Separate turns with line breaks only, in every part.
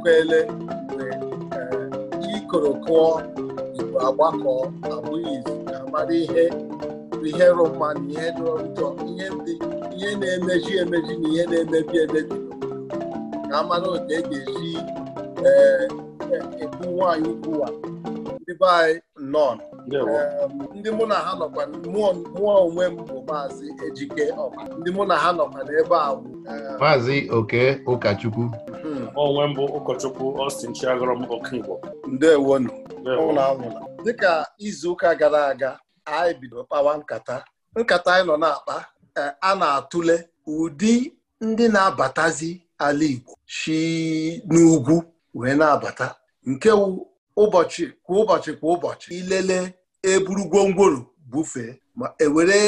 ekwele mgbe chi eh, koro kụọ igbo agbakọ abụghị ga-amara ihe ihe rụ na ihe dịrọ njọ ihe ndị ihe na-emeji emeji na ihe na-emebi emebi ka a mara otu e ga-esi ee eh, ekwu eh, nwaanyị ukwua ndị be anyị nọn ndị mụ na ha nọkwa mụọ onwe m bụ maazị ejike ọba ndị mụ na ha nọkwa n'ebe a bụ
maazị oke ụkọchukwu
hmm. onwe m bụ ụkọchukwu Austin Chiagọrọm Okigbo ndewonu dịka ụka gara aga anyị bido kpawa nkata nkata anyị nọ na-akpa e, a na-atụle ụdị ndị na-abatazi ala Igbo si n'ugwu wee na-abata nke ụbọchị kwa ụbọchị kwa ụbọchị ilele eburu gwongworo bufee ma ewere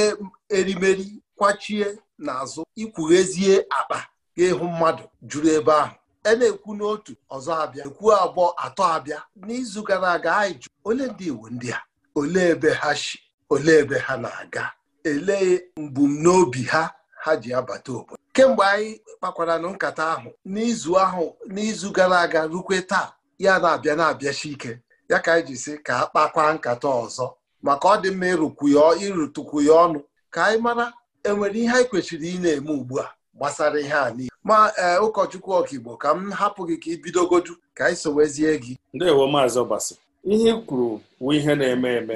erimeri kwachie n'azụ ikwughezie akpa ga-ịhụ mmadụ juru ebe ahụ e na-ekwu n'otu ọzọ abịa ekwu abụọ atọ abịa n'izu gara aga anyị jụ ole ndị Igbo ndị a olee ebe ha si olee ebe ha na-aga elee mbumnobi ha ha ji abata obodo kemgbe anyị kpakwara na nkata ahụ n'izu ahụ n'izu gara aga rukwe taa ya na-abịa na-abịachi ike ya ka anyị ji si ka a kpakwa nkata ọzọ maka ọ dị mma ịrụkwu ịrụtụkwu ya ọnụ ka anyị mara enwere ihe anyị kwesịrị ị na-eme ugbu a gbasara ihe a niile ma ee ụkọchukwu ọkaigbo ka m hapụ gị ka ị bidogodu ka anyị sowezie gị ndewo maazị ọbasi ihe ị kwuru bụ ihe
na-eme eme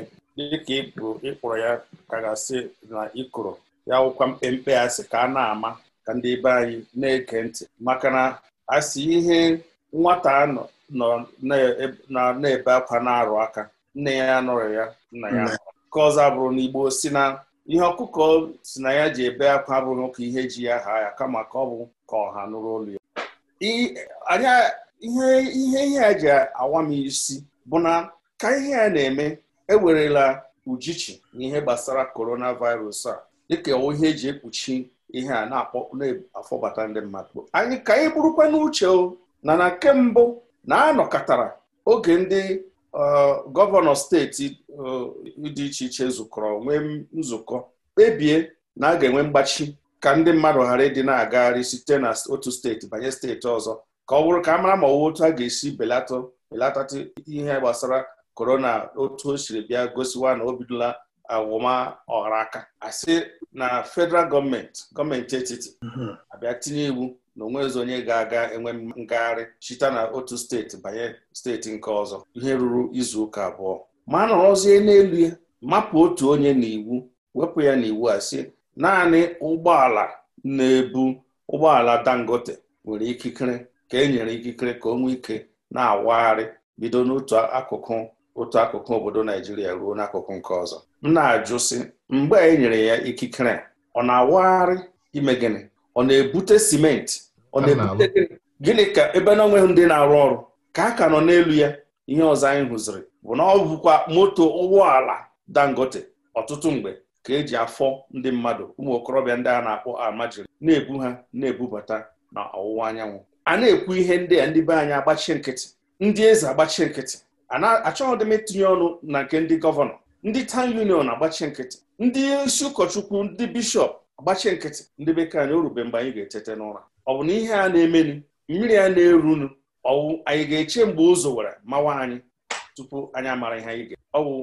dịka ịkpụrụ ịkpụrụ ya ka gasị na ịkụrụ ya wụkwa mkpemkpe asị ka a na-ama ka ndị be anyị na eke ntị maka na asị ihe nwata nọ nọ na-ebe akwa na-arụ aka nne ya nụrụ ya nna ya ka ọzọ bụrụ na si na ihe ọkụkọ si na ya ji ebe akwa abụrụ ụka ihe ji ya ha ya kama ka ọ bụ ka ọha nụrụ olu ya anya ihe ihe ihe a ji awa m isi bụ na ka ihe a na-eme ewerela ujichi na ihe gbasara coronavirus a dịka ihe eji ekpuchi ihe a na-afọbata ndị mmadụ anyị ka anyị bụrụkwa n'uche o na na nke mbụ na-anọkọtara oge ndị uh, gọvanọ steeti uh, dị iche iche zukọrọ nwee nzukọ kpebie na a ga-enwe mgbachi ka ndị mmadụ ghara ịdị na-agagharị site na otu steeti banye steeti ọzọ ka ọ bụrụ ka a mara ma ọwụ otu a ga-esi belata belatatụ ihe gbasara korona otu o siri bịa gosiwa na o bidola awụma ọghara aka asị na federal gọọmenti gọọmenti etiti mhm. abịa tinye iwu na onwezi onye ga-aga enwe ngagharị chita na otu steeti banye steeti nke ọzọ ihe ruru izu ụka abụọ ma nọrọzie n'elu ya mapụ otu onye n'iwu wepụ ya n'iwu a sị naanị ụgbọala na-ebu ụgbọala dangote nwere ikikere ka e nyere ikikere ka o nwee ike na-awagharị bido n'otu akụkụ otu akụkụ obodo naijiria ruo n'akụkụ nke ọzọ m na-ajụ sị mgbe e nyere ya ikikere ọ na-awagharị ime gịnị ọ na-ebute simenti ọ na gịnị ka ebe na onweghị ndị na-arụ ọrụ ka a ka nọ n'elu ya ihe ọzọ anyị hụziri bụ na ọ bụkwa moto ụgbọala dangote ọtụtụ mgbe ka eji afọ ndị mmadụ ụmụ okorobịa ndị a na-akpọ amajiri na-ebu ha na-ebubata na ọwụwa anyanwụ a na-ekwu ihe ndị a ndị be anyị agbachi nkịtị ndị eze agbachi nkịtị achọghị dị m itinye ọnụ na nke ndị gọvanọ ndị tan union agbachi nkịtị ndị isi ụkọchukwu ndị bishọp agbachi nkịtị ndị bekee anyị o mgbe anyị ga-etete n'ụra ọ bụ na ihe a na-emenu mmiri a na-erunu ọwụ anyị ga-eche mgbe ụzọ were mawa anyị tupu anyị amara ihe anyị ga ọ bụ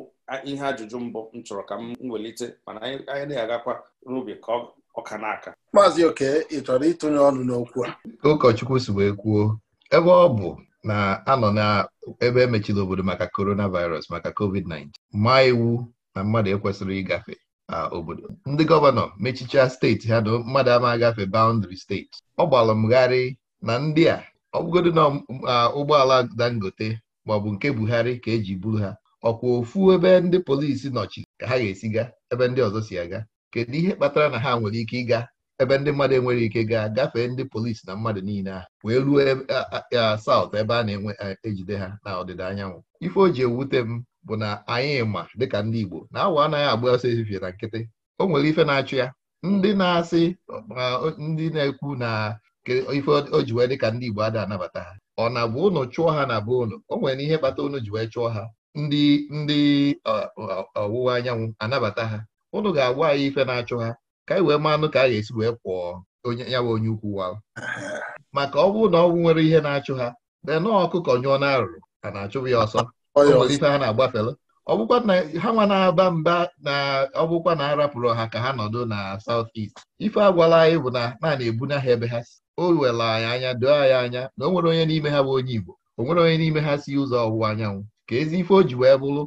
ihe ajụjụ mbụ m chọrọ ka m nwelite mana anyị na-agakwa n'ubi ka
ọka n'aka maazị oke ị chọrọ ịtụnye
ọnụ n'okwu a ụkọchukwu si wee kwuo ebe ọ bụ na-anọ na ebe emechiri obodo maka coronavirus maka covid-19 maa iwu na mmadụ ekwesịrị ịgafe obodo ndị gọvanọ mechichaa steeti ha na mmadụ ama agafe baụndịrị steeti ọ gbalụ mgharị na ndị a ọ na ụgbọala dangote maọbụ nke buhari ka eji buru ha ọkwa ofu ebe ndị polisi nọchi ka ha ga-esi ga ebe ndị ọzọ si aga kedu ihe kpatara na ha nwere ike ịga ebe ndị mmadụ enwere ike gaa gafee ndị polisi na mmadụ niile ahụ wee ruo e, saụt ebe a na-ejide ha na ọdịda anyanwụ ife o ji ewute m bụ na anyị ma dịka ndị Igbo na awa anaghị agba ọsọ ezifie na nkịtị o nwere ife na-achụ ya ndị na-asị ndị na-ekwu na ife ojiwe wee dịka ndị Igbo ada anabata ha ọ na bụ ụnụ chụọ ha na bụ ụnụ o nwere ihe kpata ụnụ ji wee chụọ ha ndị ndị ọwụwa anyanwụ anabata ha ụnụ ga-agwa anyị ife na-achụ ha ka anyị wee manụ ka a ga-esi wee kwụọ onye ya onye ukwu wa maka ọ bụrụ na ọnwụ nwere ihe na-achụ ha nọọ ọkụkọ nyụọ na arụrụ a na-achụbụ ya ọsọ ọyọ ha na-agbafela ọbụkwa na ha nwa na-aba mba na ọbụkwa na arapụrụ ha ka ha nọdụ na saut est ife agwala anyị bụ na naanị ebuna ha ebe ha si o wela anyị anya doo anyị anya na o nwere onye n'ime ha bụ onye Igbo o nwere onye n'ime ha si ụzọ ọwụwa anyanwụ ka ezi ife o ji wee bụrụ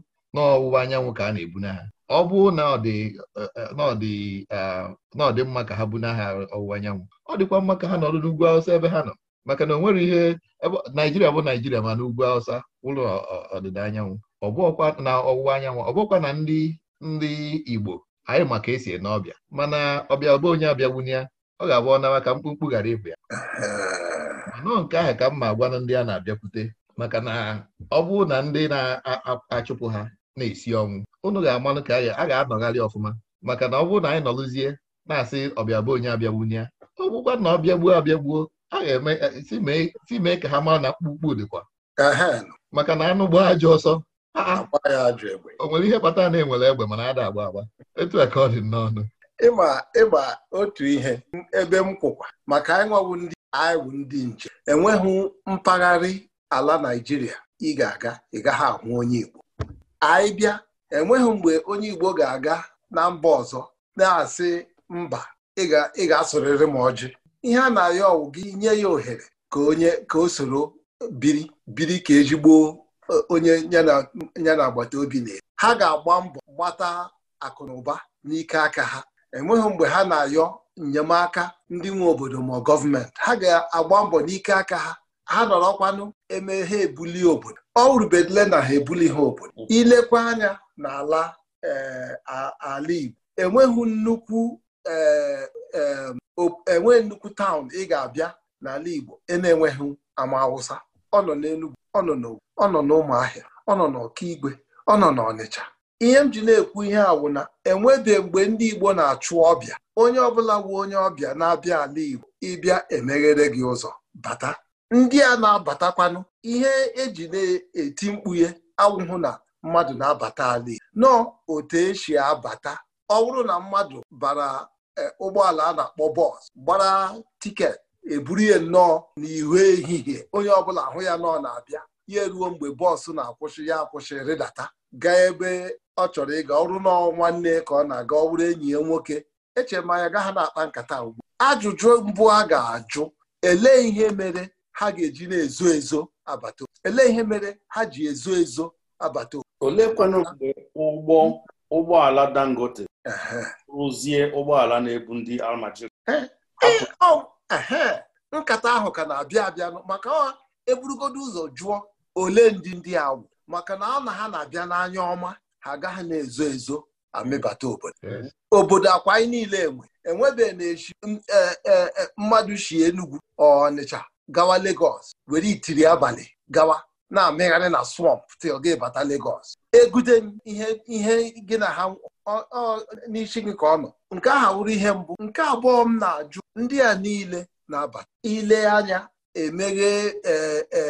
anyanwụ ka a na-ebuna ha ọ bụ na ọ dị mma ka ha buna ha ọwụwa anyanwụ ọ dịkwa mma ka ha nọdụ n'ugwu Awụsa ebe ha nọ maka na o nwero ihe naijiria bụ naijiria ma na ugwu awụsa ụlọ ọdịda anyanwụ ọbụọkwa na ọwụwa anyanwụ ọbụọkwa na ndị ndị igbo anyị ma ka esi ene ọbịa mana ọbịa ọba onye abịawunye ya ọ ga-abụ ọnawa ka mkpụmkpụ ghara ịbụ ya manọọ nke ahụ ka mma gwa ndị a na-abịakwute maka na ọ bụ na ndị na-achụpụ ha na-esi ọnwụ unu ga-amanụ ka a ga-anọgharị ọfụma maka na ọ bụrụ na anyị nọlụzie na-asị ọbịa bụ onye abịagbunye ya ọ bụkwa na ọbịagbuo abịagbuo a ga-eme e, e, si mee ka ha mara na akpụkpụ dịkwa maka na anụ gbaa ajọ ọsọ o nwere ihe kpatara na enwere egbe mana ada agba agba etu ka ọ dị n'ọnụ ịma ịgba
otu ihe ebe m kwụkwa maka anyị ndị anyị bụ ndị nche enweghị mpaghara ala naijiria ị ga-aga ị gaghị ahụ onye Igbo anyị bịa enweghị mgbe onye Igbo ga-aga na mba ọzọ na-asị mba ị ga-asụrịrị m ọjị ihe a na-ayọ ọwụ gị nye ya ohere ka onye ka o soro biri biri ka ezigbo e, onye ya na agbata obi na ha ga-agba mbọ gbata akụnụba n'ike aka ha enweghị mgbe ha na-ayọ enyemaka ndị nwe obodo ma gọọmenti ha ga-agba mbọ n'ike aka ha ha nọrọkwanụ eme ha ebuli obodo ọ rubedile na ha ebuli ha obodo ilekwa anya n'ala eh, ala Igbo enweghị nnukwu Eh, eh, eh, enwe nnukwu taụn ị ga-abịa n'ala Igbo e na-enweghị ama Awụsa ọ nọ n'Enugwu ọ nọ n'Ogun ọ nọ n'Ụmụahịa ọ nọ n'Ọkigwe ọ nọ n'Ọnịcha ihe m ji na-ekwu ihe awụ na enwebe mgbe ndị Igbo na-achụ ọbịa onye ọbụla wu onye ọbịa na-abịa ala Igbo ịbịa emeghere gị ụzọ bata ndị a na-abatakwanụ ihe eji na-eti mkpughe awụhụ na mmadụ na-abata ala Igbo nọọ otu esi abata ọ bụrụ na mmadụ bara E, ụgbọala a na-akpọ bọs gbara tiketi eburu ya nnọọ n'ihu ehihie onye ọbụla ahụ ya nọ na-abịa ya eruo mgbe bọọsụ na-akwụsị ya akwụsị rịdata gaa ebe ọ chọrọ ịga ọrụ nọ nwanne ka ọ na-aga ọ bụrụ enyi ya nwoke echere m anya gaa ha na-akpa nkata ugbu ajụjụ mbụ a ga-ajụ elee ihe mere ha ga-eji na-ezo ezo abata elee ihe mere ha ji ezo ezo abata oleekwanụ mgbe
ụgbọ ụgbọala Dangote rụzie ụgbọala na-ebu ndị almaji
nkata ahụ ka na-abịa abịa maka eburugodo ụzọ jụọ ole ndị ndị a wụ maka na ọ na ha na-abịa n'anya ọma ha agaghị na-ezo ezo amịbata obodo obodo akwa anyị niile enwe enwebeghị na e, e, e, mmadụ shi Enugu Ọnịcha gawa Lagos were itiri abalị gawa na-amịgharị na swamp til gị bata Lagos egute ihe gị na ha n'isi gị ka ọ nọ nke ahụ wụrụ ihe mbụ nke abụọ m na-ajụ ndị a niile na-abata ile anya emeghe e, e,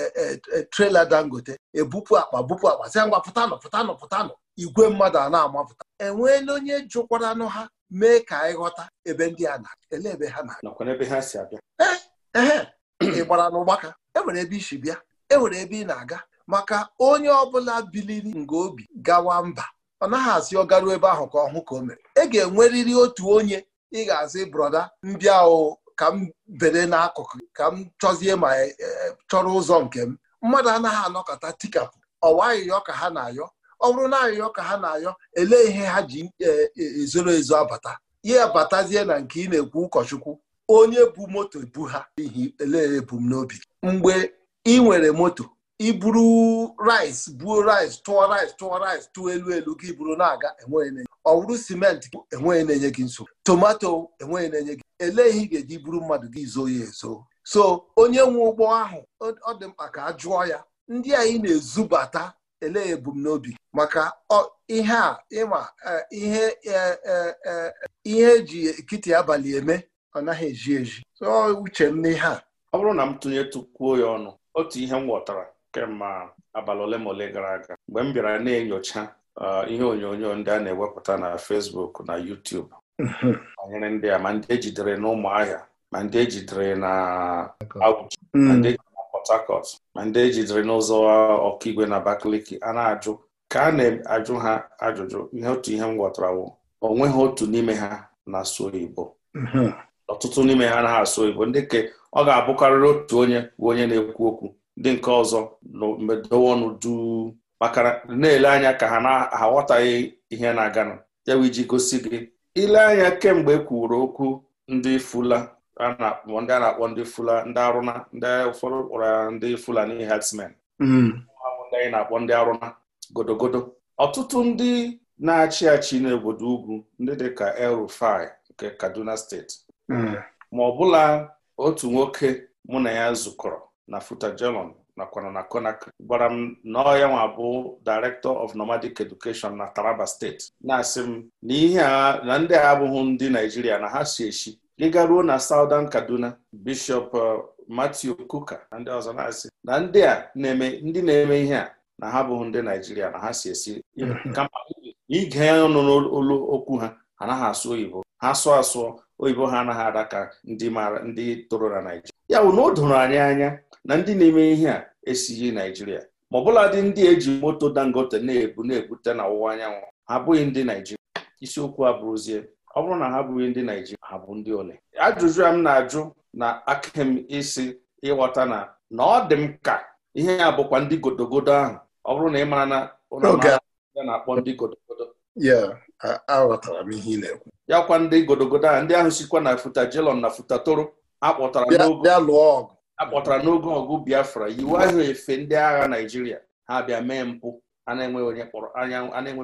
e, trela dangote ebupụ akpa bupu akpa sị ngwa pụtanụ pụtanụ pụtanụ igwe mmadụ a na-amapụta enweela onye jụkwaranụ ha mee ka anyị ghọta ebe ndị a na-ele ebe ha na-abịa ee ị gbara n'ụgbaka enwere ebe isi bịa enwere ebe ị na-aga maka onye ọbụla biliri nga obi gawa mba ọ naghị asị ọ garuo ebe ahụ ka ọ hụ ka o mere ị e ga-enwerịrị otu onye ị ga-asị brọda ndị ahụ ka m bere n'akụkụ ka m chọzie ma e, e, chọrọ ụzọ nke m mmadụ anaghị anọkọta tikapụ ọwa ka ha na-ayọ ọ bụrụ na ayọyọ ka ha na-ayọ elee ihe ha ji ezoro ezo abata ya batazie na nke ị na-ekwu ụkọchukwu onye bu moto bu ha n'ihi elee ebumnobi mgbe ị nwere moto iburu rice buo rice tụọ rice tụọ rice tụọ elu elu gị buru na-aga enweghị na-enye ọ bụrụ simenti enweghị na-enye gị nsogbu tomato enweghị na-enye gị ele ihe ị ga-eji buru mmadụ gị zoo ya ezo so onye nwe ụgbọ ahụ ọ dị mkpa ka a jụọ ya ndị anyị na-ezubata ele ebumnobi maka ihe a ịma e, ihe e, e, ihe eji ekiti abalị eme ọ naghị eji eji so uche m n'ihe a ọ bụrụ na m tụnye tụkwuo ya ọnụ otu
ihe m ghọtara kemgbe abalị ole ma ole gara aga mgbe m bịara na-enyocha uh, ihe onyonyo ndị a na-ewepụta na Fesbuk na yutub banyere ndị a ma ndị ejidere na ma ndị ejidere na Abuja ma mm. ndị ejidere na ma ndị ejidere n'ụzọ ọkaigwe na Abakaliki a na-ajụ ka a na-ajụ ha ajụjụ ihe otu ihe m gwọtara o otu n'ime ha na-asụ mm-hmm. ọtụtụ n'ime ha anaghị asụ oyibo ndị ka ọ ga-abụkarịrị otu onye bụ onye na-ekwu okwu ndị nke ọzọ medowonụdu maka na-ele anya ka ha na-aghọtaghị ihe na-aganụ ya bụ iji gosi gị ile anya kemgbe e kwuru okwu ndị fula a na-akpọ ndị fula ndị arụna ndị ụfọdụ kpọrọ ndị fulani herdsmen hmm. ndị na-akpọ ndị arụna godogodo ọtụtụ ndị na-achị achị n'obodo ugwu ndị dịka El-Rufai nke Kaduna steeti hmm. ma ọbụla otu nwoke mụ na ya zukọrọ na Futa nakwana na Konak. gwara m na ọ ya nwa bụ Director of Nomadic Education na Taraba steeti na-asị m na ihe a na ndị a abụghị ndị Naijiria na ha si esi, gị ruo na Southern Kaduna Bishop uh, Matthew Kuka na ndị ọzọ na-asị na ndị a na-eme ndị na-eme ihe a na ha abụghị ndị Naijiria na ha si esi mm-hmm. kama ige ọnụ n'olu okwu ha anaghị asụ oyibo ha sụọ asụọ oyibo ha anaghị ada ka ndị mara ndị toro na naijiria ya bụ na o doro anyị anya na ndị na-eme ihe a esighị naijiria ma ọbụladị dị ndị eji moto dangote na-ebu na-ebute na ọwụwa anyanwụ ha abụghị ndị naijiria isiokwu abụrụzie ọ bụrụ na ha abụghị ndị naijiria ha bụ ndị ole ajụjụ a m na-ajụ na aka m isi ịghọta na na ọ dị m ka ihe ya bụkwa ndị godogodo ahụ ọ bụrụ na ị mara na ụlọ na-akpọ ndị godogodo aghọtara m ihe ị na-ekwu ya kwa ndị godogodo ndị ahụ sikwa na futajelon na futatoro akpọtara n'oge ọgụ biafra iwu ahụ efe ndị agha naijiria ha bịa mee mpụ a na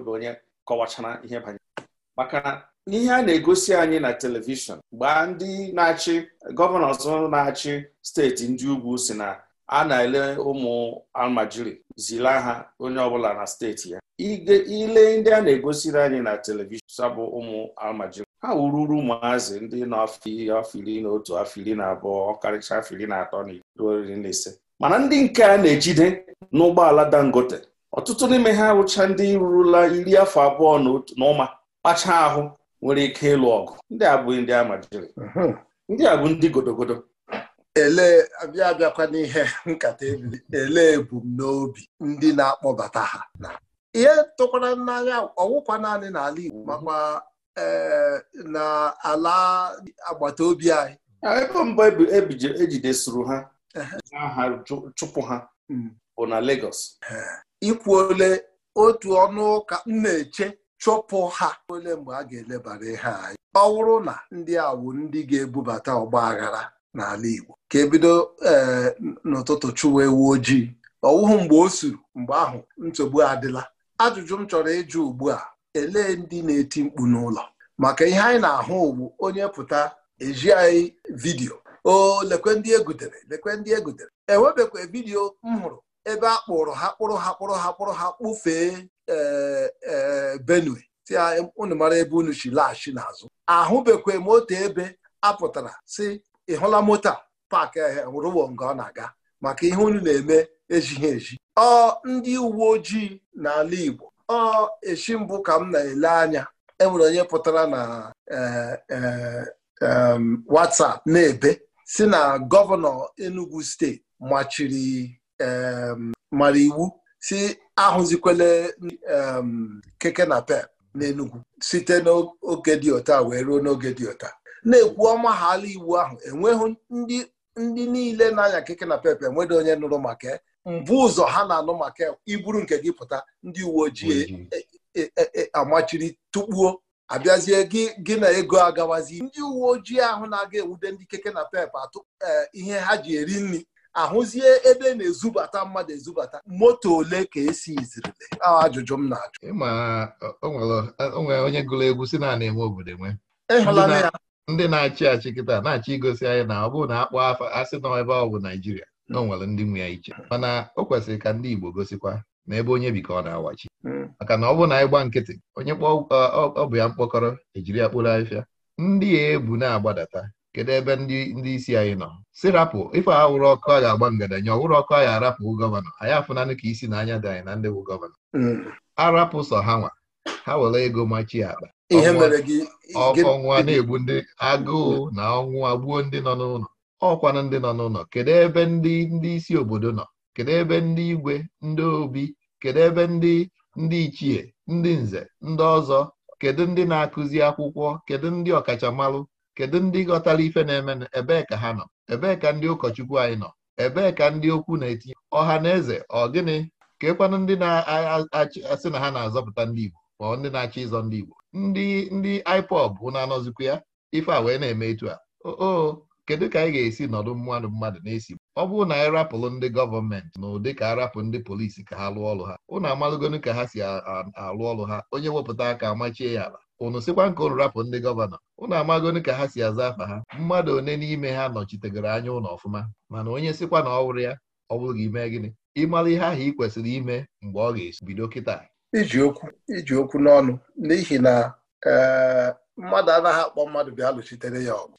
onye kọwachara ihe banyere maka na ihe a na-egosi anyị na telivishọn mgbe ndị na-achị gọvanọ ọzọ na-achị steeti ndị ugwu si na a na-ele ụmụ almajiri zila ha onye ọbụla na steeti ya ile ndị a na-egosiri anyị na telivishọn bụ ụmụ almajiri ha wururu ụmụazị ndị n'afọ na otu afọ iri na abụọ ọkarịcha afọ iri na atọ na ruo iri na ise mana ndị nke a na-ejide n'ụgbọala dangote ọtụtụ n'ime ha wụcha ndị rurula iri afọ abụọ na ụma kpacha ahụ nwere ike ịlụ ọgụ ndị a bụ ndị amajiri
ndị a bụ ndị godogodo ele abịa abịakwa n'ihe nkata ebili ele ebumnobi ndị na-akpọbata ha ihe tụkwara n'anya ọwụkwa naanị n'ala Igbo makwa eh, na ala agbata obi anyị
ebe mbụ ejidesuru e
ha aha chụpụ ha hmm. bụ na Lagos ikwu ole otu ọnụ ụka m na-eche chụpụ ha ole mgbe a ga-elebara ihe anyị ọ bụrụ na ndị a ndị ga-ebubata ọgba aghara n'ala Igbo ka ebido ee eh, n'ụtụtụ chụwa ewu ojii ọwụhụ mgbe o suru mgbe ahụ nsogbu adịla ajụjụ m chọrọ ịjụ ugbu a elee ndị na-eti mkpu n'ụlọ maka ihe anyị na-ahụ bụ onye pụta eji anyị vidiyo o lekwe ndị egutere lekwe ndị egutere enwebekwa vidiyo m hụrụ ebe a kpụrụ ha kpụrụ ha kpụrụ ha kpụrụ ha kpụfee ee eh, eh, benue tia unu mara ebe unu si laghachi n'azụ ahụbekwa m otu ebe apụtara si ị hụla moto a paakị rụwo nke ọ na-aga maka ihe unu na-eme ejighị eji ọ ndị uwe ojii n'ala Igbo ọ echi mbụ ka m na-ele anya enwere onye pụtara na e, e, e, WhatsApp na-ebe si na gọvanọ Enugu steeti machiri mara iwu si ahụzikwele keke na pep n'Enugu site n'oge dị ụta wee ruo n'oge dị ụta. na-ekwu ọma ha iwu ahụ enweghị ndị ndị niile na-anya keke na pepe enweghị onye nụrụ maka mbụ mm. ụzọ ha na-anụ maka iburu nke gị pụta ndị uwe ojii e, e, e, amachiri tụkpuo abịazie gị na ego agawazi ndị uwe ojii ahụ na-aga ewude ndị keke na pep atụ ihe ha ji eri nri ahụzie ebe na-ezubata mmadụ ezubata moto ole ka esi izirile ajụjụ m na-ajụ
onwere onye gụrụ egwu si na enwe obodo ndị na-achị achị kịta na-achị igosi anyị na ọ bụrụ na akpọ afọ asị nọ ebe ọ bụ naijiria na onwere nwere ndị nwe ya iche mana o kwesịrị ka ndị igbo gosikwa na ebe onye bikọ na-awachi hmm. maka na ọ bụrụ na anyị gba nkịtị onye ọ bụ ya mkpọkọrọ ejiri ya kpụrụ afịa ndị ya ebu na-agbadata kedu ebe ndị isi anyị nọ si rapụ ife awụrụ ọkụ a ga-agba ngadanya ọwụrụ ọkụ a ga-arapụ gọvanọ anyị afụnanụ ka isi na anya dị anyị na ndị bụ gọvanọ hmm. arapụ sọ ha nwa ha were ego machie akpa ọkụ ọnwụwa na-egbu ndị agụụ na ọnwụ gbuo ndị nọ n'ụlọ ọkwanụ ndị nọ n'ụlọ kedu ebe ndị ndị isi obodo nọ kedu ebe ndị igwe ndị obi kedu ebe ndị ndị ichie ndị nze ndị ọzọ kedu ndị na-akụzi akwụkwọ kedu ndị ọkachamara kedu ndị ghọtara ife na-eme ebee ka ha nọ ebee ka ndị ụkọchukwu anyị nọ ebee ka ndị okwu na-etinye ọha na eze ọ gịnị ka ekwanụ ndị na-asị na ha na-azọpụta ndị Igbo ma ndị na-achọ ịzọ ndị Igbo ndị ndị IPOB na-anọzikwa ya ife a wee na-eme etu a Oo, kedu ka anyị ga-esi nọdụ mmadụ mmadụ na-esi ọ bụrụ na anyị rapụrụ ndị gọọmenti na ụdị ka arapụ ndị polisi ka ha lụọ ọrụ ha ụnụ amalụgonu ka ha si alụ ọrụ ha onye wepụta aka amachie ya ala ụnụ sịkwa nke ụnụ rapụ ndị gọvanọ ụnụ amagonu ka ha si aza afa ha mmadụ one n'ime ha nọchitegoro anya ụlọ ọfụma mana onye sịkwa na ọ wụrụ ya ọ bụrụ gị mee gịnị ịmalụ ihe ahụ ị kwesịrị ime mgbe ọ ga-esi bido kịta iji okwu
iji okwu n'ọnụ n'ihi na eh, mmadụ anaghị akpọ mmadụ bịa lụchitere ya ọgụ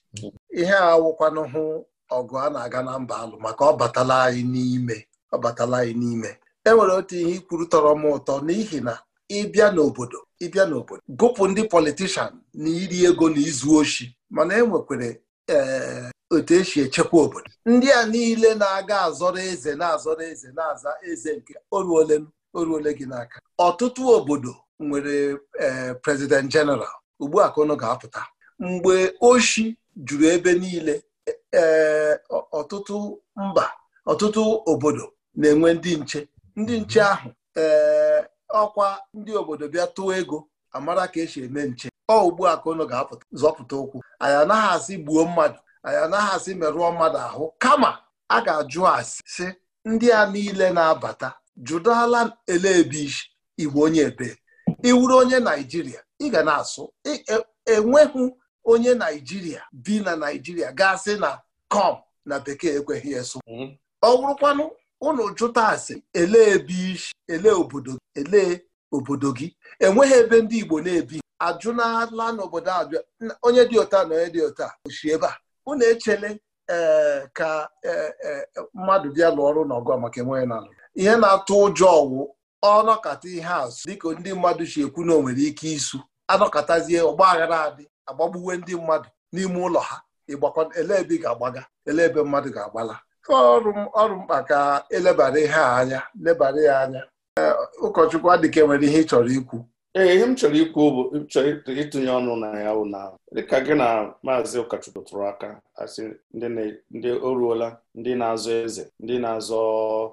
ihe a wụkwanụ hụ ọgụ a na-aga na mba alụ maka ọ batala anyị n'ime ọ batala anyị n'ime e nwere otu ihe ikwuru tọrọ m ụtọ n'ihi na ịbịa n'obodo ịbịa n'obodo gụpụ ndị politishan na iri ego na izu oshi mana e nwekwere ee eh, otu esi echekwa obodo ndị a niile na-aga azọrọ eze na-azọrọ eze na-aza eze nke oruolenu o ruole gị n'aka ọtụtụ obodo nwere e, prezident jeneral ugbu a ka ụnụ ga-apụta mgbe oshi juru ebe niile ee e, ọtụtụ mba ọtụtụ obodo na-enwe ndị nche ndị nche mhm. ahụ ee ọkwa ndị obodo bịa tụọ ego amara ka esi eme nche ọ ugbu a ka ụnụ ga-apụta zọpụta ụkwụ anyị anaghị asị gbuo mmadụ anyị anaghị asị merụọ mmadụ ahụ kama a ga-ajụ asị sị, ndị a niile na-abata jụdala ele ebe igbo onye ebe iwuru onye naijiria ị ga na-asụ e, enweghị onye naijiria bi na naijiria gasị na kom na bekee ekweghị eso mhm. ọ wụrụkwanụ ụnụ jụta asị ele ebe ele obodo ele obodo gị enweghị ebe ndị igbo na-ebi ajụnala n'obodo abịa onye dị ụta na onye dị ụta oshi ebe a ụnụ echele ee eh, ka eh, eh, mmadụ bịa lụọ ọrụ n'ọgụ maka enweghị na ihe na-atụ ụjọ ọwụ ọnọkata ihe azụ dịka ndị mmadụ si ekwu na o nwere ike isu anọkatazie ọgba aghara adị agbagbuwe ndị mmadụ n'ime ụlọ ha ele ebe ị ga-agbaga ele ebe mmadụ ga-agbala ọrụ mkpa ka elebara ihe a anya lebara ya anya ụkọchukwu adịka e nwere ihe ị chọrọ ikwu ee ihe m
chọrọ ikwu bụ chọrọ ịtụnye ọnụ na ya bụ na dịka gị na maazị ụkọchukwu tụrụ aka asị ndị o ruola ndị na-azọ eze ndị na-azọ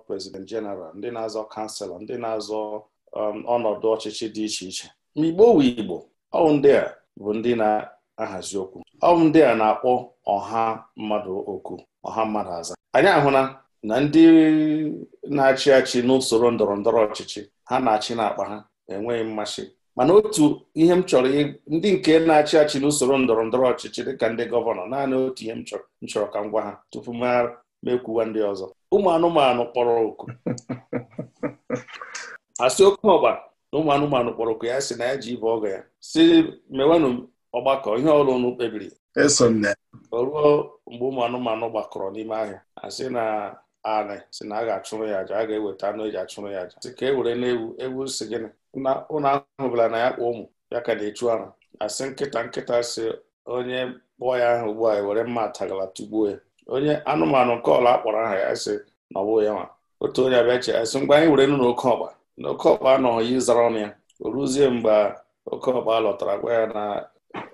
prezident jeneral ndị na-azọ kanselọ ndị na-azọ um, ọnọdụ ọchịchị dị iche iche ma igbo wu igbo ọwụ ndị a bụ ndị na-ahazi okwu ọwụ ndị a na-akpọ ọha mmadụ okwu ọha mmadụ aza anyị ahụla na ndị na-achị achị n'usoro ndọrọ ndọrọ ọchịchị ha na-achị n'akpa ha enweghị mmasị mana otu ihe m chọrọ ndị nke na-achị achị n'usoro ndọrọ ndọrọ ọchịchị dịka ndị gọvanọ naanị otu ihe m chọrọ ka m gwa ha tupu m mekwuwa ndị ọzọ ụmụ anụmanụ kpọrọ oku asị oke ọgba na ụmụ anụmanụ kpọrọ oku ya si na ya ji ibe ọgọ ya si mewenụ ọgbakọ ihe ọrụ ụnụ kpebiri o ruo mgbe ụmụ anụmanụ gbakọrọ n'ime ahịa asị na anị si na a ga-achụrụ ya aja a ga-eweta anụ eji achụrụ ya aja sị ka e were na ewu si gịnị ahụ ahụbụla na ya kpụ ụmụ ya ka na-echu ara asị nkịta nkịta si onye kpụọ ya ahụ ugbu a e were mma atagala tugbuo ya onye anụmanụ nke ọla akpọrọ aha ya sị na ọ bụghị ya nwa otu onye abịa che asị mgbe anyị were nụ n'oke ọkpa na oke ọkpa anọghị ịzara ọnụ ya o ruzie mgbe oke ọkpa lọtara gwa ya na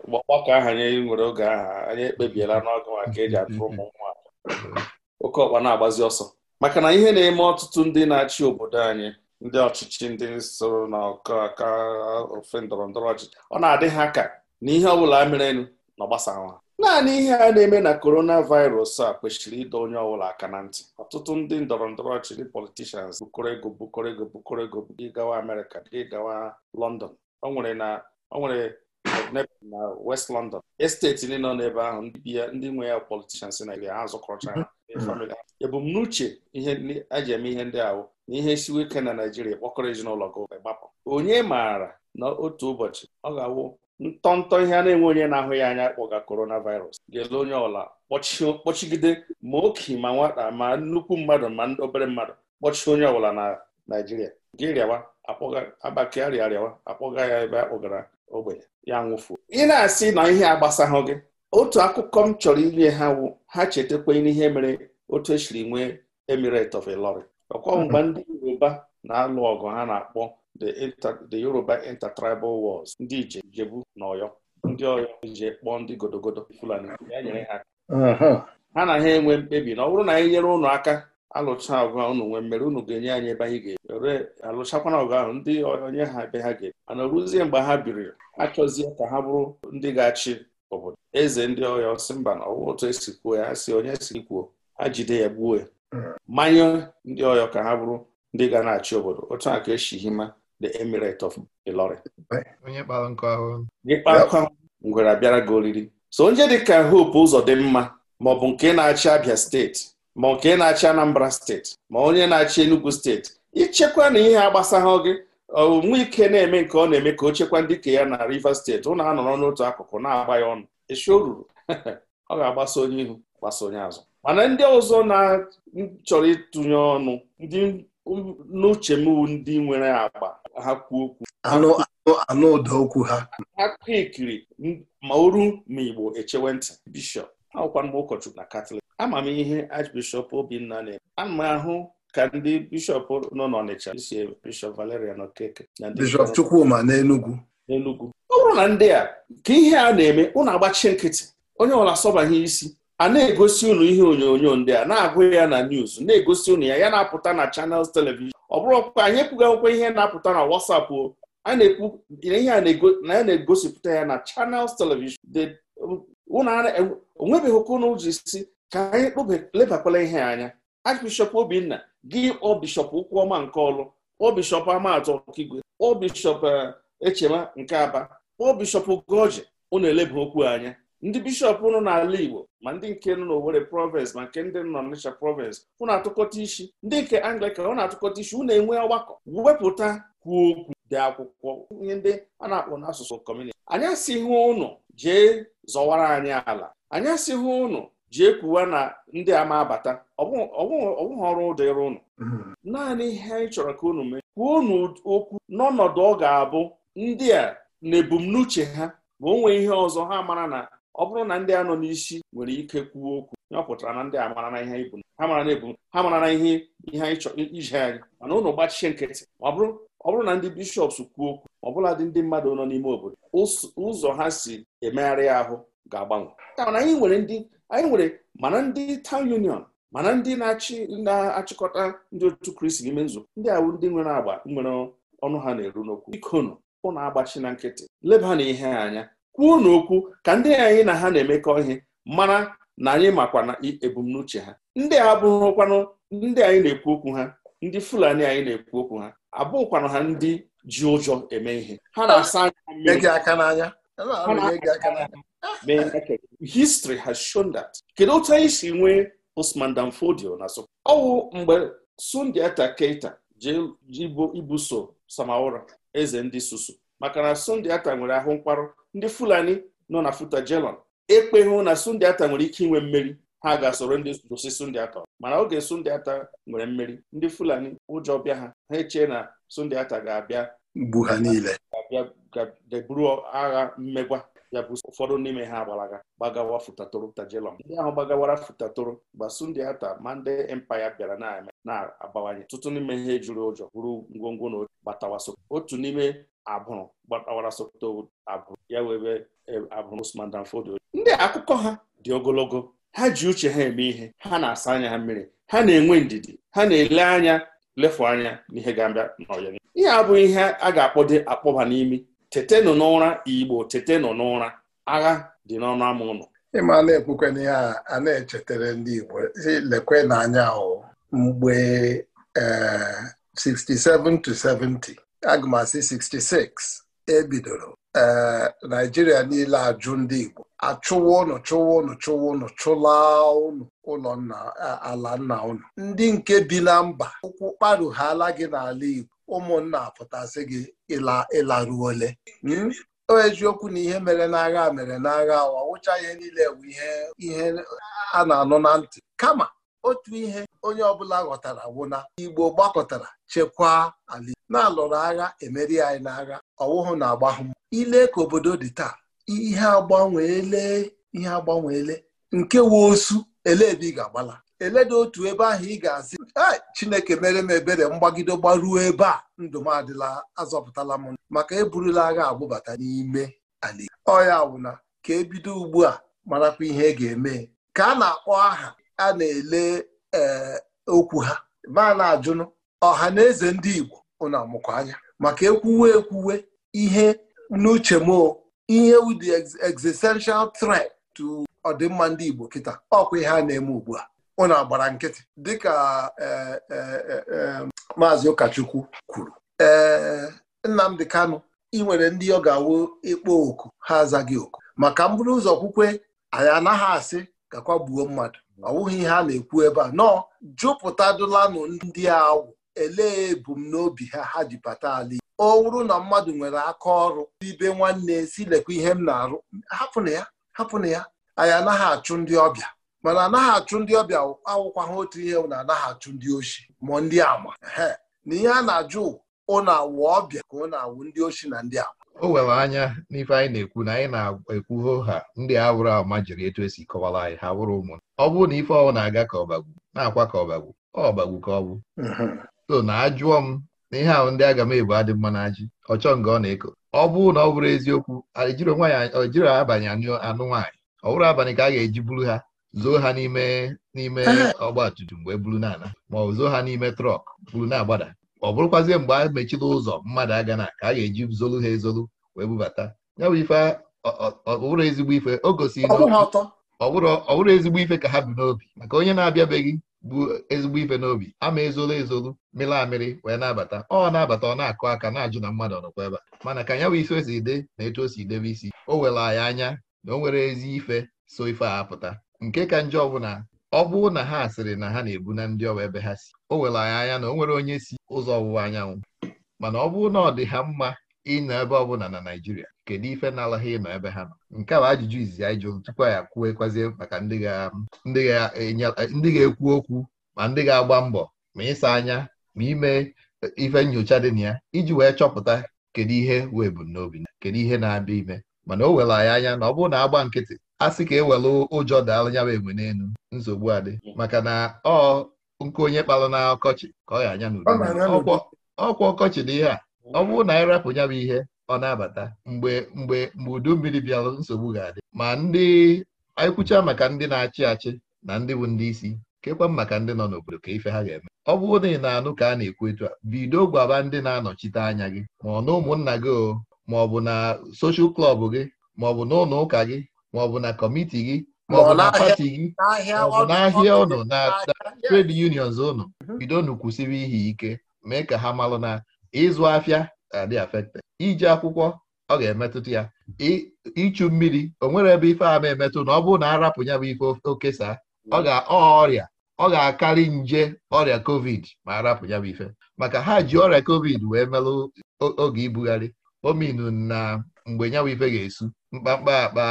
ọgbakọ ahụ anyị nwere oge aha anyị ekpebiela n'ọgụ maka eji atụrụ ụmụ nwa oke ọkpa na-agbazi ọsọ maka na ihe na-eme ọtụtụ ndị na-achị obodo anyị ndị ọchịchị ndị soro na ọkaka ofe ndọrọ ndọrọ ọchịchị ọ na-adị ha ka na ihe ọbụla merenụ na ọgbasawa naanị ihe a na-eme na korona virus a kwesịrị ịdọ onye ọbụla aka na ntị ọtụtụ ndị ndọrọ ndọrọ ọchịchị politishans bukọrọ ego bukọrọ ego bukọrọ ego gị gawa amerịka gị gawa lọndọn nwere na ọ nwere na west london esteti ndị nọ n'ebe ahụ ndị nwe ya politishans na ha zụkọrọcha ha ya bụ m mm. n'uche ihe eji eme ihe ndị ahụ na ihe siwe ike na naijiria kpọkọrọ ezinụlọ gị gbapụ onye maara na otu ụbọchị ọ ga-awụ ntọntọ ihe a na-enwe onye na-ahụ ya anya kpọga coronavirus ga-ele onye ọla kpọchigide ma oke ma nwata ma nnukwu mmadụ ma ndị obere mmadụ kpọchie onye ọbụla na naijiria gị rịawa agbake arịawa akpọga ya ebe a kpọgara ogbenye ya nwụfuo ị na-asị na ihe agbasaghụ gị otu akụkọ m chọrọ inye ha wụ ha chetakwa n'ihe mere otu esiri nwee emirate of Ilorin ọkwa mgbe hmm. ndị Yoruba na-alụ ọgụ ha na-akpọ the Yoruba intertribal wars ndị ije Ijebu na Ọyọ ndị Ọyọ ije kpọọ ndị godogodo Fulani ya nyere ha ha na ha enwe mkpebi na ọ bụrụ na anyị nyere ụnụ aka alụcha ọgụ ahụ unu nwee mmeri unu ga-enye anyị ebe anyị ga-ere alụchakwana ọgụ ahụ ndị onye ha ebe ha ga ebe mana ruzie mgbe ha biri achọzie ka ha bụrụ ndị ga-achị obodo eze ndị ọhịa ọsị mba na ọwụ otu esi kwuo ya si onye si kwuo ha jide ya gbuo ya manye ndị ọhịa ka ha bụrụ ndị ga na-achị obodo otu a ka esi the emirate of Ilori
onye ahụ
ngwere abịara gị oriri so onye dịka Hope ụzọ dị mma ma ọ bụ nke na-achị Abia steeti ma nke na-achị Anambra steeti ma onye na-achị Enugu steeti ichekwa na ihe agbasaghị gị ike na-eme nke ọ na-eme ka o chekwa ndị ke ya na Rivers steeti ụnụ anọrọ n'otu akụkụ na-agba ya ọnụ echi o ruru ọ ga-agbasa onye ihu gbasa onye azụ mana ndị ọzọ na-chọrọ ịtụnye ọnụ ndị n'uche m ndị nwere agba ha kwuo okwu anụ ụda okwu ha akụkọ ikiri ma oru ma igbo echewe ntị bishọp akwụkwa mgbe ụkọchukwu na katọlik ama m ihe Archbishop Obinna na-eme ana m ahụ ka ndị bishọp nọ n'Ọnịcha isi bishọp Valerian Okeke na ndị bishọp Chukwuma n'Enugwu n'Enugwu ọ bụrụ na ndị a ka ihe a na-eme ụnụ agbachi nkịtị onye ọbụla asọbaghị isi a na-egosi ụnụ ihe onyonyo ndị a na-agụ ya na news na-egosi ụnụ ya ya na-apụta na chanels televishọn. ọ bụrụ ọkpụkpa anyị ekwughị ihe na-apụta na WhatsApp o ihe a na-egosipụta ya na channels televishọn. onwebeghị ụka unu ji si ka anyị lebakwala ihe anya Archbishọp Obinna gị ọbishọp Ụkwụọma nke Ọlụ ọbishọp Amatọ Okigwe ọbishọp eh, Echema nke Aba ọbishọp Ugoji unu eleba okwu anya ndị bishọp nọ n'ala Igbo ma ndị nke nọ n'Owere province ma nke ndị nọ n'Ọnịcha province unu atụkọta isi ndị nke Anglican na atụkọta isi unu enwe ọgbakọ wepụta kwuo okwu dị akwụkwọ ihe ndị a na-akpọ n'asụsụ kọmuniti anyị asịghị ụnụ jee zọwara anyị ala anyị asịghị ụnụ jee kwuwa na ndị a ma abata ọbụghị ọrụ dịrị ụnụ mm-hmm. naanị ihe anyị chọrọ ka unu mee kwuo unu okwu n'ọnọdụ ọ ga-abụ ndị a na ebumnuche ha ma o nwee ihe ọzọ ha mara na ọ bụrụ na ndị a nọ n'isi nwere ike kwuo okwu ya ọ na ndị a mara na ihe ibu ha mara na ebu ha mara na ihe ihe anyị chọrọ ije anyị mana ụnụ gbachie nkịtị ọ bụrụ na ndị bishọps kwuo okwu ọbụladị ndị mmadụ nọ n'ime obodo ụzọ ha si emegharị ahụ ga-agbanwe mana anyị nwere ndị anyị nwere mana ndị town union mana ndị na-achị na-achịkọta ndị otu kristi n'ime nzukọ ndị awụ ndị nwere agba nwere ọnụ ha na-eru n'okwu ikonụ kwụ na-agbachi na nkịtị leba na ihe anya kwuo n'okwu ka ndị anyị na ha na-emekọ ihe mara na anyị makwa na ebumnuche ha ndị a abụghịkwanụ ndị anyị na-ekwu okwu ha ndị fulani anyị na-ekwu okwu ha abụghịkwanụ ha ndị ji ụjọ eme ihe ha na-asa anya mmiri History has shown that kedu otu anyị si nwee Usman Dan na so ọwụ mgbe Sundiata keta Keita ibuso Samaora eze ndị susu maka na Sundiata nwere ahụ mkparụ ndị Fulani nọ na Futajelon hụ na Sundiata Ata nwere ike inwe mmeri ha ga-asoro ndị susu Sunday mana oge Sundiata Ata nwere mmeri ndị Fulani ụjọ bịa ha ha echee na Sundiata ga-abịa gbu ha niile buru agha mmegwa ya bụ ụfọdụ n'ime ha gbalaga gbagawa futatoro tajelọm ndị ahụ gbagawara futatoro gbasu ndị ata ma ndị empaya bịara na-eme na-abawanye tụtụ n'ime ihe juru ụjọ bụrụ ngwongwo na gbatawa otu n'ime abụrụ gbatawara sokoto abụrụ ya webe e, abụrụ Usman Dan ndị akụkọ ha dị ogologo ha ji uche ha eme ihe ha na-asa anya ha mmiri ha na-enwe ndidi ha na-ele anya lefu anya n'ihe ga-abịa n'ọyịa ihe a bụ ihe a ga-akpọde akpọba n'imi tetenụ n'ụra igbo tetenụ n'ụra agha dị n'ọnụ ama ụlọ
ịma na-ekwukwe ihe a na-echetara ndị igbo lekwe n'anya o mgbe 67 eh, 70 agụmasị 66 ebidoro eh, naijiria niile ajụ ndị igbo achụwa ụnụ chụwa ụnụ chụwa ụnụ chụla ụnụ ụlọ nna ala nna ụnụ ndị nke bi na mba ụkwụ kparughala gị n'ala Igbo ụmụnna pụtasị gị ịlaruole hmm? eziokwu na ihe mere n'agha mere n'agha ọ wụcha ihe niile bụ ihe a na-anụ na ntị kama otu ihe onye ọbụla ghọtara wụna Igbo gbakọtara chekwaa ala na-alụrụ agha emeri anyị n'agha ọwụhụ na-agbahụ ile ka obodo dị taa ihe agbanweele ihe agbanweele nke woosu ele ebe ị ga-agbala eledị otu ebe ahụ ị ga-asị chineke mere m ebere mgbagide gbaruo ebe a ndụ m adịla azọpụtala m maka eburula agha agbụbata n'ime ala ọya wụna ka ebido ugbu a marakwa ihe e ga-eme ka a na-akpọ aha a na-ele eh, okwu ha ma na-ajụnụ ọha na eze ndị Igbo ụna amụkọ anya maka ekwuwe ekwuwe ihe n'uche m ihe wu the existential threat to ọdịmma ndị Igbo kịta ọkwa ihe a na-eme ugbu a ụnụ agbara nkịtị dịka e, e, e, maazị ụkọchukwu kwuru ee Nnamdị Kanụ ị ndị ọ ga-awụ ịkpọ oku ha azaghị oku maka mbụrụ ụzọ kwukwe anyị anaghị asị gakwa gbuo mmadụ ọ wụghị ihe a na-ekwu ebe a nọọ jupụtadụlanụ ndị awụ elee ebumnobi ha ha ji bata ala ọ wụrụ na mmadụ nwere aka ọrụ ibe nwanne si lekwa ihe m na-arụ hapụna ya hapụna ya anyị anaghị achụ ndị ọbịa mana anaghị achụ ndị ọbịa awụkwa ha otu ihe na anaghị achụ ndị ochi ma ndị ama na ihe a na-ajụ ụnụ awụ ọbịa ka ụnụ awụ ndị ochi na ndị ama o nwere
anya n'ife anyị na-ekwu na anyị na-ekwu ho ha ndị awụrụ ama jiri etu esi kọwara anyị ha wụrụ ụmụ ọ bụrụ na ife ọwụ na-aga ka ọbagwu na-akwa ka ọbagwu ọbagwu ka ọ bụ so na ajụọ m n'ihe ihe ahụ ndị agamebu adị mma na ajị ọchọ nga ọ na-eko ọ bụrụ na ọ bụrụ eziokwu ojiri abanye anụ nwaanyị ọ bụrụ abalị ka a ga-eji buru ha zoo ha n'ime n'ime ọgba tumtum mgbe buru n'ala ma ọ zoo ha n'ime trọk buru na-agbada ọ bụrụkwazie mgbe a mechila ụzọ mmadụ aga na ka a ga-eji zolu ha ezolu wee bubata ya bụ ife ọ bụrụ ezigbo ife o gosiri ọ bụrụ ezigbo ife ka ha bi n'obi maka onye na-abịabeghị bụ ezigbo ife n'obi ama ezolo ezolu mịrị amịrị wee na-abata ọ na-abata ọ na-akụ aka na-ajụ na mmadụ ọnọkwa ebe a mana ka nya bụ isi osi ide na etu o si debe isi o were anyị anya na o nwere ezi ife so ife a apụta nke ka njọ ọbụla ọ bụrụ na ha sịrị na ha na-ebu na ndị ọwa ebe ha si o were anyị anya na o nwere onye si ụzọ ọwụwa anyanwụ mana ọ bụụ na ọ dị ha mma ịnọ ebe ọ bụla na Naịjirịa kedu ife na-alaghị ịnọ ebe ha nọ nke a bụ ajụjụ izizi anyị jụrụ tupu ya kwuekwazie maka ndị ga-ekwu okwu ma ndị ga-agba mbọ ma ịsa anya ma ime ife nyocha dị na ya iji wee chọpụta kedu ihe wee bụ n'obi kedu ihe na-abịa ime mana o were anyị anya na ọ bụrụ na agba nkịtị a sị ka e were ụjọ daala ya egbe n'elu nsogbu adị maka na ọ nke onye kpara na ọkọchị ka ọ ya anya n'udo ọkwa ọkọchị dị ihe a ọ bụrụ na anyị rapụ ya bụ ihe ọ na-abata mgbe mgbe mgbe udu mmiri bịara nsogbu ga-adị ma ndị anyị maka ndị na-achị achị na ndị bụ ndị isi kekwa maka ndị nọ n'obodo ka ife ha ga-eme ọ bụrụ na ị na-anụ ka a na-ekwu etu a bido gwaba ndị na-anọchite anya gị ma ọ na ụmụnna gị o ma ọ bụ na soshal klọb gị ma ọ bụ na ụlọ ụka gị ma ọ bụ na kọmiti gị ma ọ bụ na pati gị
ma ọ bụ n'ahịa ụnụ na
trade unions ụnụ mhm. bidonu kwụsịrị ihe ike mee ka ha malụ na ịzụ afịa na uh, adị afekte iji akwụkwọ ọ ga-emetụta ya ịchụ mmiri o nwere ebe ife ama emetụ na ọ bụrụ na arapụ ya bụ ife okesa ọ ga-ọ ọrịa ọ ga-akarị nje ọrịa covid ma arapụ ya bụ ife maka ha ji ọrịa covid wee melụ oge ibugharị ominu na mgbe nyanwụ ife ga-esu mkpakpa akpa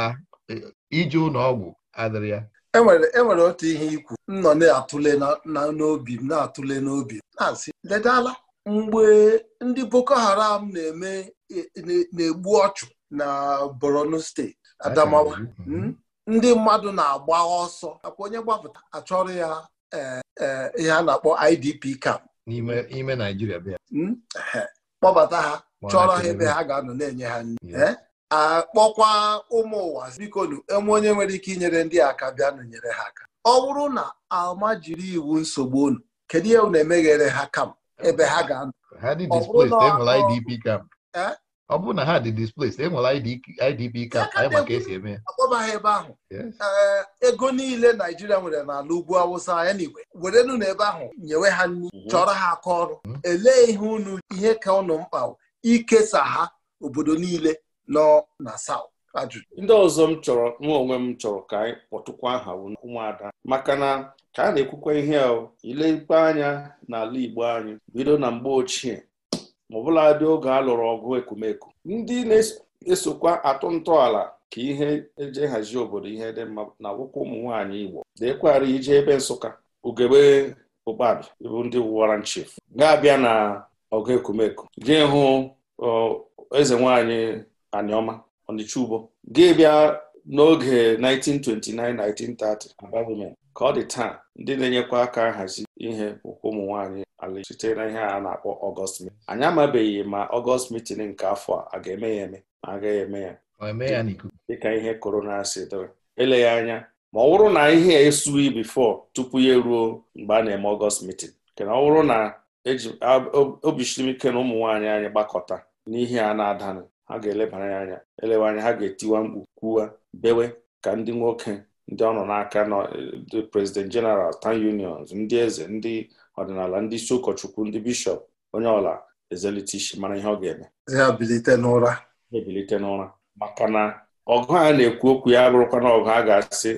eh, iji ụlọ ọgwụ adịrị ya enwere
e otu ihe ikwu m nọ na-atụle n'obi m na-atụle n'obi na-asị mgbe ndị boko haram na-eme e, na-egbu ọchụ na borno steeti adamawa mhm. hmm, ndị mmadụ na-agba ọsọ akwa onye gbapụta achọrọ ya e, e, ihe a na-akpọ idp camp n'ime naijiria bịa hmm, kpọbata ha chọrọ ha ebe ha ga-anọ na-enye ha nri akpọkwa eh? ụmụ ụwa biko enwe onye nwere ike inyere ndị aka bịa nụnyere ha aka ọ bụrụ na alma jiri iwu nsogbu unu kedu ihe unu emeghere ha kam. ebe ha ga-anọ
ha dị displaced enwere IDP camp ọ bụrụ na ha dị displaced enwere IDP camp anyị maka esi eme
akpọba ha ebe ahụ ego niile Naijiria nwere n'ala ugwu awụsa ya na igwe werenụ n'ebe ahụ nyewe ha nri chọrọ ha aka ọrụ hmm. elee ihe unu ihe ka unu mkpa ikesa ha obodo niile nọ na South ajụjụ
ndị ọzọ m chọrọ nwa onwe m chọrọ ka anyị kpọtụkwa aha ụmụada maka na ka a na-ekwukwa ihe a ilekwa anya n'ala Igbo anyị bido na mgbe ochie ma ọbụladị oge a lụrụ ọgụ ekwumeku ndị na-esokwa atụ ntọala ka ihe eje hazie obodo ihe dị mma na akwụkwọ ụmụ nwaanyị Igbo deekwara ije ebe Nsụka ugegbe ụkpabi ịbụ ndị wara nchif ga-abịa na ọgụ ekwumeku jee hụ eze nwaanyị Anioma Onichubo ga bịa n'oge 1929-1930 ka ọ dị taa ndị na-enyekwa aka nhazi ihe bụkwa ụmụ nwaanyị ala site na ihe a na-akpọ ọgọst mitin anyị amabeghị ma ọgọst mitin nke afọ a ga-eme ya eme ma agaghị eme ya dịka ihe korona si dịrị eleghị anya ma ọ bụrụ na ihe esughị bifọ tupu ya eruo mgbe a na-eme ọgọst mitin kena ọ bụrụ na eji obisiri ike na ụmụ nwaanyị anyị gbakọta n'ihe a na-adanụ ha ga-elebara anya elewe anya ha ga-etiwa mkpu kwuwa bewe ka ndị nwoke ndị ọ nọ n'aka nọ ndị eh, prezident jeneral tan unions ndị eze ndị ọdịnala ndị isi ụkọchukwu ndị bishọp onye ọla ezelite isi mara ihe ọ ga-eme
ebilite n'ụra
ebilite n'ụra maka na ọgụ a na-ekwu okwu ya bụrụkwa na ọgụ a ga-asị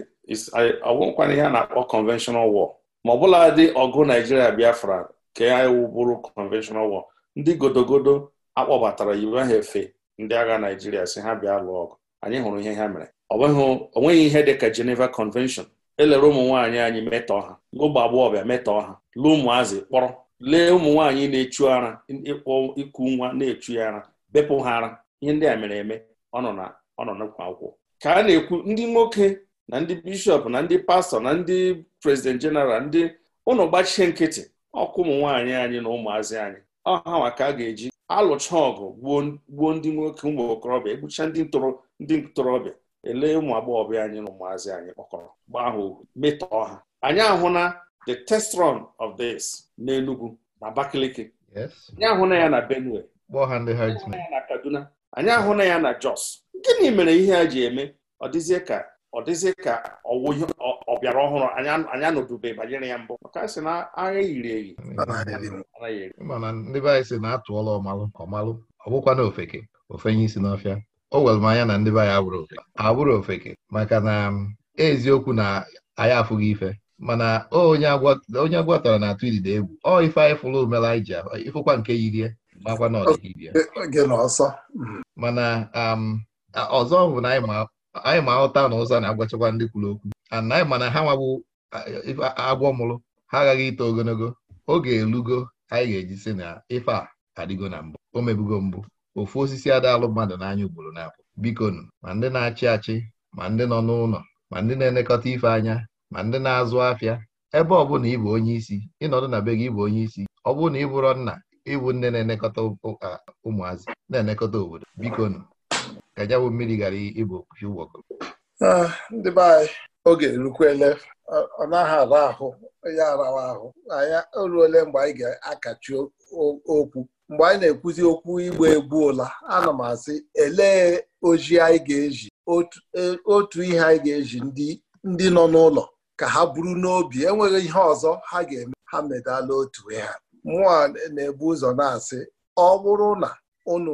ọgwụkwana ihe a na-akpọ conventional war ma ọ bụla dị ọgụ naijiria biafra ka ya bụrụ conventional war ndị godogodo akpọbatara yiwe ha efe ndị agha Naijiria si ha bịa lụọ ọgụ anyị hụrụ ihe ha mere o nweghị ihe dị ka Geneva Convention elere ụmụ nwaanyị anyị metọọ ha ụmụ agbọghọbịa metọọ ha lee ụmụazị kpọrọ lee ụmụ nwaanyị na-echu ara ịkpọ iku nwa na-echu ya ara bepụ ha ara ihe ndị a mere eme ọ nọ akwụkwọ ka a na-ekwu ndị nwoke na ndị bishọp na ndị pastọ na ndị prezident jeneral ndị ụlọ gbachie nkịtị ọkụ ụmụ nwaanyị anyị na ụmụazị anyị ọ ha ka a ga-eji alụcha ọgụ gbuo ndị nwoke ụmụ okorobịa egbucha ndị ntorobịa elee ụmụ agbọghọbịa anyị na ụmụazị anyị kpọkọrọ gbaa ha ohu metọọ ha anyị ahụna the testron of of this n'Enugu na Abakaliki anyị ahụna ya na Benue anyị ahụna ya na Jos gịnị mere ihe a ji eme ọ dịzie ka ọ dịzị ka ọwụ ihe bịara ọhụrụ anyị anọdube banyere ya mbụ maka sị na agha yiri eyi
mana ndị be anyị si na atụọla ọmalụ ọmalụ ọ bụkwa na ofeke ofenye isi n'ọfịa o were m anya na ndị be anyị abụrụ ofeke abụrụ ofeke maka na um, eziokwu na anyị afụghị ife mana onye agwatara na-atụ idide egwu ọ ife anyị fụrụ omere anyị ji ịfụkwa nke yirie makwa na ọdịghị mana um, ọzọ bụ na anyị ma anyị ma ahụta na ụza na-agwachakwa ndị kwuru okwu ana anyị mana ha nwabụ agwọ mụrụ ha aghaghị ito ogologo oge elugo anyị ga-eji sị na ife a adịgo na mbụ o mebugo mbụ ofu osisi adaalụ mmadụ n'anya ugboro na-abụ bikonu ma ndị na-achị achị ma ndị nọ n'ụlọ ma ndị na-elekọta ife anya ma ndị na-azụ afịa ebe ọ bụla ịbụ onye isi ịnọdụ na be gị ịbụ onye isi ọ bụrụ na ị bụrụ nna ịbụ nne na-elekọta ụmụazị na-elekọta obodo bikonu ka mmiri ghara ịbụ okwuchi
ah, ndị be anyị oge erukwele ọ naghị ara ahụ ya arawa ahụ anyị oruole mgbe anyị ga-akachi okwu mgbe anyị na-ekwuzi okwu igbe egbu ụla ana m asị elee ojii anyị ga-eji e, otu ihe anyị ga-eji ndị nọ n'ụlọ ka ha buru n'obi enweghị ihe ọzọ ha ga-eme ha medala otu ha mụọ na-ebu ụzọ na-asị ọ bụrụ na unu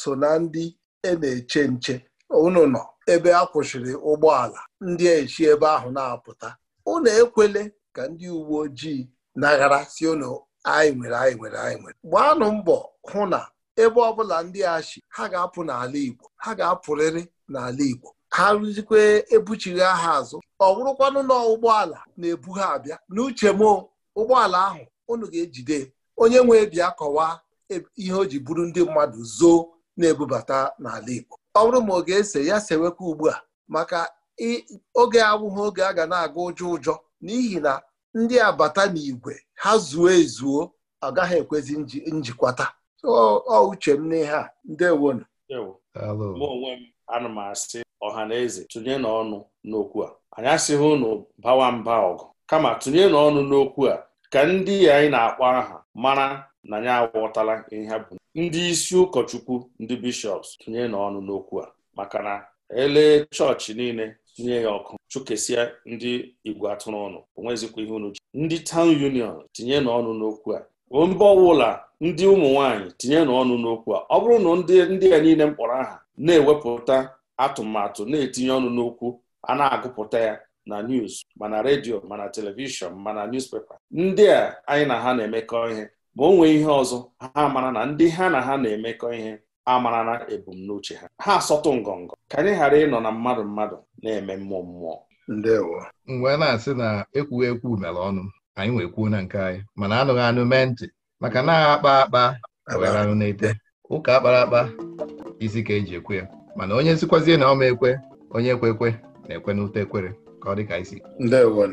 so na ndị e na-eche nche unu nọ ebe a kwụsịrị ụgbọala ndị echi ebe ahụ na-apụta ụnụ ekwele ka ndị uwe ojii naghara si unu anyị nwere anyị nwere anyị nwere gbaanụ mbọ hụ na ebe ọbụla ndị achi ha ga-apụ n'ala Igbo ha ga-apụrịrị n'ala Igbo ha rụzikwe ebuchiri aha azụ ọ bụrụkwanụ na ụgbọala na-ebu ha abịa n'uche m ụgbọala ahụ unu ga-ejide onye nwee bịa kọwaa e, ihe o ji buru ndị mmadụ zoo na-ebubata n'ala Igbo ọ bụrụ ma ọ ga-ese ya sewekwa ugbu a maka oge awụghị oge a ga na-aga ụjọ ụjọ n'ihi na ndị abata n'igwe ha zuo ezuo gaghị ekwezi njikwata ọ uche m n'ihe a ndewonu
mụ onwe m ana m asị ọha na eze tụnye n'ọnụ n'okwu a anyị asịghị ụnụ bawa mba ọgụ kama tụnye n'ọnụ n'okwu a ka ndị anyị na-akpọ aha mara na ya aghọtala ihe bụ ndị isi ụkọchukwu ndị bishọps tinye n'ọnụ n'okwu a maka na elee chọọchị niile tinye ya ọkụ chụkesia ndị igwe atụrụ ọnụ onwezikwa ihe unu ji ndị tawn union tinye n'ọnụ n'okwu a mba ọbụla ndị ụmụ nwaanyị tinye n'ọnụ n'okwu a ọ bụrụ na ndị ndị niile mkpọrọ aha na-ewepụta atụmatụ na-etinye ọnụ n'okwu a na-agụpụta ya na news mana redio mana telivishọn mana newspaper ndị a anyị na ha na-emekọ ihe ma o nwee ihe ọzọ ha mara na ndị ha na ha na-emekọ ihe amara na ebumnuche ha ha asọtụ ngọngọ ka anyị ghara ịnọ na mmadụ mmadụ na-eme mmụọ mmụọ
ndewo mgbe na-asị na ekwughị ekwu mere ọnụ anyị nwee kwuo na nke anyị mana anụghị anụ mee ntị maka na agha akpa akpa were anụ na-ete ụka akpara akpa isi ka eji ekwe ya mana onye sikwazie na ọma ekwe onye ekwe ekwe na-ekwe n'ute ekwere ka ọ dị ka isi ndewo